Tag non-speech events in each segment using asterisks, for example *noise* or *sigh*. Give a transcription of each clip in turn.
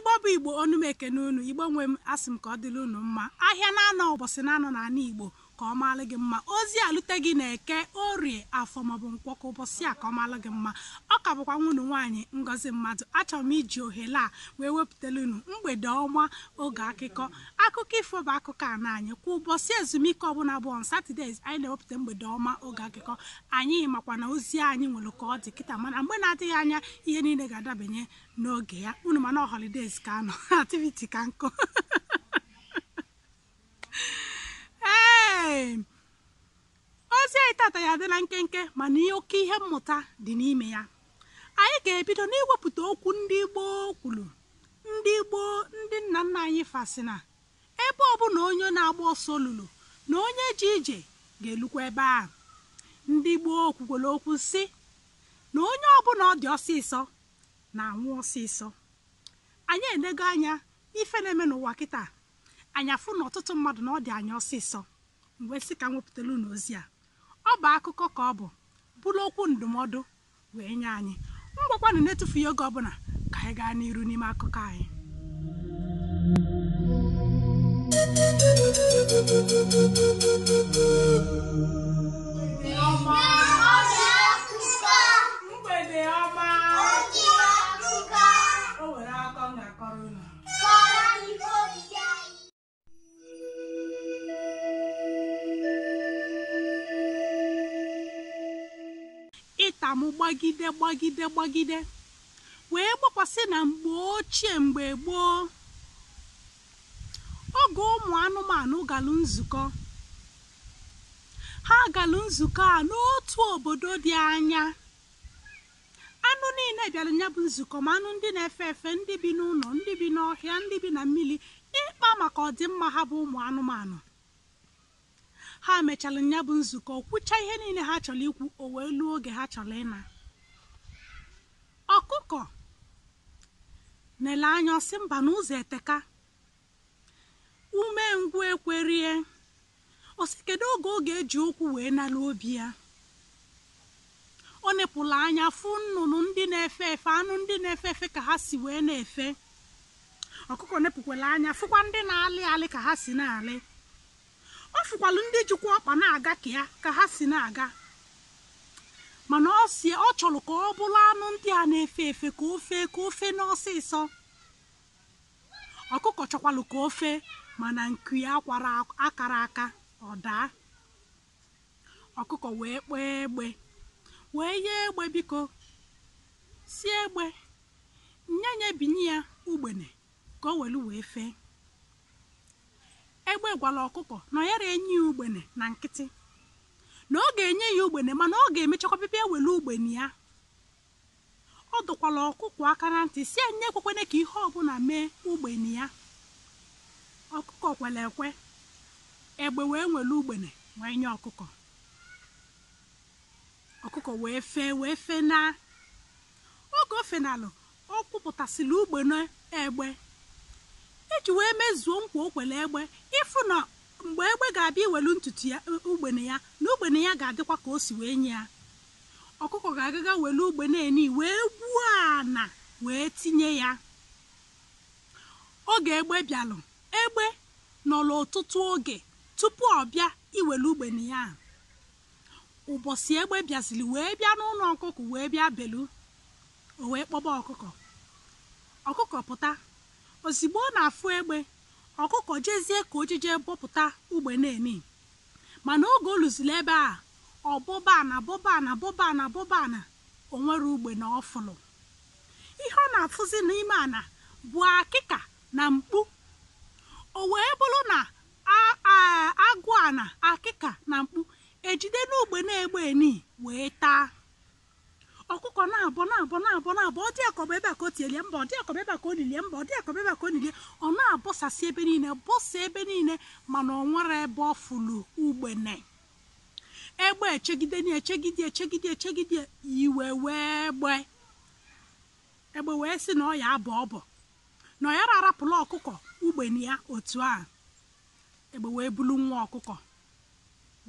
igbo bụ igbo onu m ekene unu igbo nwe m asị m ka ọ dịrị unu mma ahịa na-anọ ụbọchị na-anọ igbo ka ọ gị mma ozi alute gị na-eke orie afọ maọbụ nkwọkọ ụbọchị a ka ọ maalụ gị mma ọ ka bụkwa nwunye nwaanyị ngozi mmadụ achọrọ m iji ohere a wee wepụtara unu mgbede ọma oge akụkọ akụkọ ifo bụ akụkọ a na anyị kwa ụbọchị ezumike ọbụla bụ on anyị na-ewepụta mgbede ọma oge akụkọ anyị makwa na ozi anyị nwere ka ọ dị kịta mana mgbe na-adịghị anya ihe niile ga-adabanye n'oge ya unu mana holidays ka anọ *laughs* activity ka nkụ *laughs* anyị tata ya adịla nkenke mana ihe oke ihe mmụta dị n'ime ya anyị ga-ebido n'iwepụta okwu ndị gboo kwuru ndị gboo ndị nna nna anyị fasị na ebe ọbụla onye na-agba ọsọ olulu na onye ji ije ga-elukwa ebe a ndị gboo kwukwere okwu si na onye ọbụla ọ dị ọsịsọ na-anwụ ọsịsọ anyị enego anya ife na-eme n'ụwa kịta anyafụ na ọtụtụ mmadụ na ọ dị anya ọsịsọ mgbe sị ka m wepụtara ozi a ọ bụ akụkọ ka ọ bụ bụrụ okwu ndụmọdụ wee nye anyị ngwakwanụ na-etufughị oge ọbụla ka anyị gaa n'iru n'ime akụkọ anyị nwata m gbagide gbagide gbagide wee gbakwasị na mgbe ochie mgbe gboo oge ụmụ anụmanụ galụ nzukọ ha galụ nzukọ a n'otu obodo dị anya anụ niile bịara ya bụ nzukọ ma anụ ndị na-efe efe ndị bi n'ụlọ ndị bi n'ọhịa ndị bi na mmiri ịkpa maka ọdịmma ha bụ ụmụ anụmanụ ha mechalụ ya bụ nzukọ kwụcha ihe niile ha chọrọ ikwu o wee luo oge ha chọrọ ịna ọkụkọ na-ele anya ọsị mba n'ụzọ eteka ume ngwu ekwerie osi kedu oge oge eji okwu wee nalụ obi ya ọ nepụla anya fụ nnụnụ ndị na-efe efe anụ ndị na-efe efe ka ha si wee na-efe ọkụkọ nepụkwala anya fụkwa ndị na-alị alị ka ha si na-alị ọ fụkwalụ ndị jikwa ọkpa na-aga ka ya ka ha si na-aga mana ọ si ọ chọrọ ka ọ bụrụ anụ ndị a na-efe efe ka ofe ka ofe n'ọsịsọ ọkụkọ chọkwalụ ka ofe mana nku ya kwara akara aka ọ daa ọkụkọ wee kpee egbe wee yie egbe biko si egbe nye binye ya ugbene ka o welu wee fee egbe gwara ọkụkọ na enyi enye ya ugbene na nkịtị na ọ ga-enye ya ugbene mana ọ ga-emechakwa bịbịa ewere ugbene ya ọ dụkwala ọkụkọ aka na ntị si enye ekwekwene ka ihe ọbụla mee ugbene ya ọkụkọ kwere ekwe egbe wee nwere ugbene wee nye ọkụkọ ọkụkọ wee fee wee fee na oge ofenalụ ọ kwụpụtasịrị ugbene egbe eji wee mezuo nkwa okwele egbe ịfụ na mgbe egbe ga-abịa iwelu ntutu ya e, ugbene ya na ugbene ya ga-adịkwa ka o si wee nye ya ọkụkọ ga-agaga welu ugbene eni wee gbuo ana wee tinye ya oge egbe bịalụ egbe nọrọ ọtụtụ oge tupu ọ bịa iwelu ugbene ya ụbọchị egbe bịaziri wee bịa n'ụlọ ọkụkọ wee bịa belu o wee kpọba ọkụkọ ọkụkọ pụta ozigbo ọ na-afụ egbe ọkụkọ jezie ka ojije bọpụta ugbe na-emi mana oge oluzili ebe a ọbọbana bọbana bọbana na onwere ugbe na ọfụlụ ihe ọ na-afụzi n'ime ana bụ akịka na mkpu o wee bụrụ na agụ ana akịka na mkpu ejide n'ugbe na-egbe eni wee taa ọkụkọ na-abọ na-abọ na-abọ na-abọ ọ dị akọba ebe a ka o tielie mba ọ dị akọba ebe a ka o lilie mba ọ dị akọba ebe a ka o lilie ọ na-abọsasị ebe niile bọsa ebe niile mana ọ nwere ebe ọ fụlụ ugbene egbe echegide na echegide echegide echegide iwe wee gbe egbe wee sị na ọ ya abọ ọbọ na ọ ya arapụla ọkụkọ ugbene ya otu a egbe wee bulu nwa ọkụkọ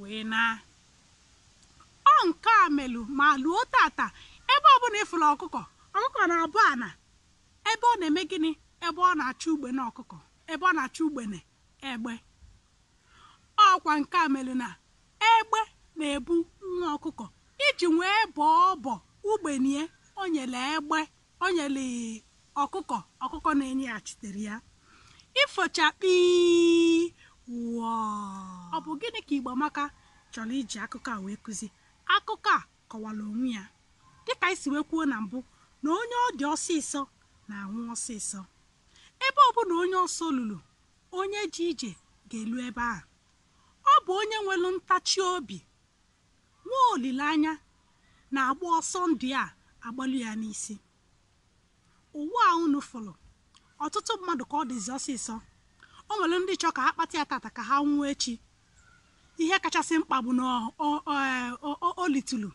wee ọ nke a melụ ma luo tata na ịfụla ọkụkọ ọkụkọ na-abụ ana ebe ọ na-eme gịnị ebe ọ na achọ ugbene ọkụkọ ebe ọ na achọ ugbene egbe ọkwa nke a mere na egbe na-ebu nwa ọkụkọ iji wee bọọ ọbọ ugbenie o nyere egbe o nyere ọkụkọ ọkụkọ na enye ya ịfọcha kpii wụọ ọ bụ gịnị ka Igbo Amaka chọrọ iji akụkọ a wee kụzi akụkọ a kọwara onwe ya dịka anyị si wee kwuo na mbụ na onye ọ dị ọsịsọ na-anwụ ọsịsọ ebe ọ onye ọsọ lụrụ onye ji ije ga-elu ebe a ọ bụ onye nwelu ntachi obi nwa olileanya na-agba ọsọ ndị a agbalụ ya n'isi ụwa a unu fụrụ ọtụtụ mmadụ ka ọ dịzi ọsịsọ o nwere ndị chọọ ka ha kpata ya tata ka ha nwụọ echi ihe kachasị mkpa bụ na olitulu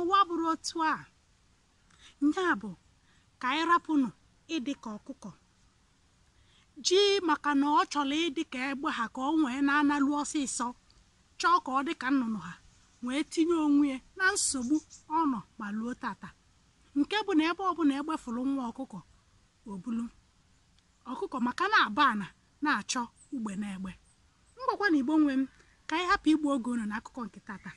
n'ụwa bụrụ otu a nya bụ ka anyị rapụnụ ịdị ka ọkụkọ ji maka na ọ chọrọ ịdị ka egbe ha ka ọ nwee na-analụ ọsịsọ chọọ ka ọ dị ka nnụnụ ha wee tinye onwe na nsogbu ọ nọ ma luo tata nke bụ na ebe ọbụla egbefuru nwa ọkụkọ obulu ọkụkọ maka na-aba ana na-achọ ugbe na egbe mgbakwa na igbo nwe m ka anyị hapụ igbu oge unu na akụkọ nke tata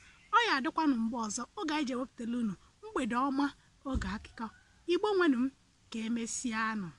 ya adịkwanụ mgbe ọzọ oge anyị ji ewepụtala unu mgbede ọma oge akụkọ igbo nwenu m ka emesịa